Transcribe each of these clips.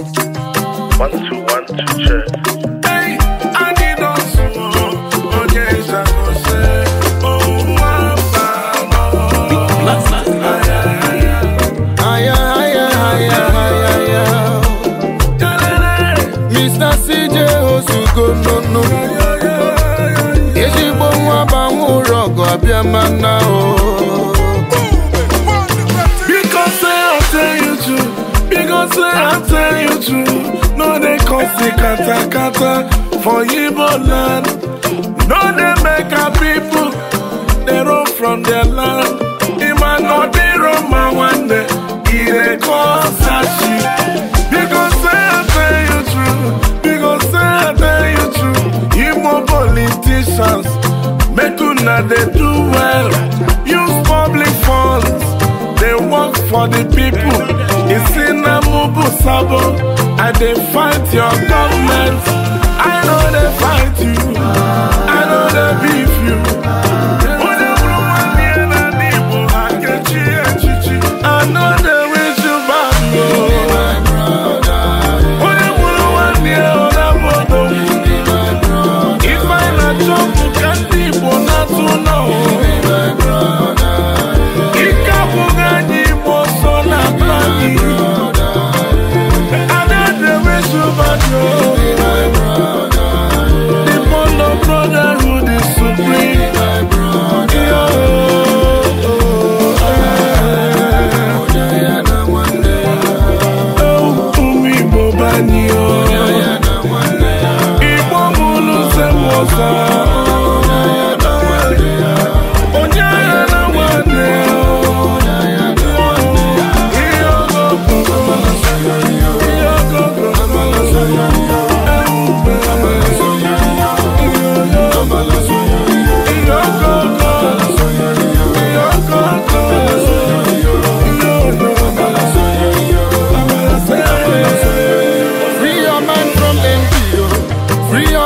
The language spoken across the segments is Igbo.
Oh, Mr. Ezigbo nwa banwe ọgụ abịa mana i tell you true no dey cause the kata kata for yibo land no dey make our pipo dey roam from their land ịma na ọ dịrọ mma nwanne ị dey cause sashi biko say i tell you true biko say i tell you true igbo politicians make una dey do well use public funds dey work for the people e see Ubu Sabo, I dey fight your government. I know they fight you.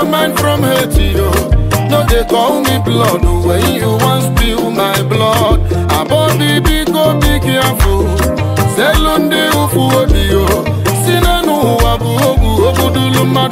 no man from haiti yo no dey call me blood oh, when you wan spill my blood abọbi biko oh, dị gị afọ selu ndị ụfụ obi oh, yo si n'ọnụ ụwa bụ ogwu ogbudulu mmadụ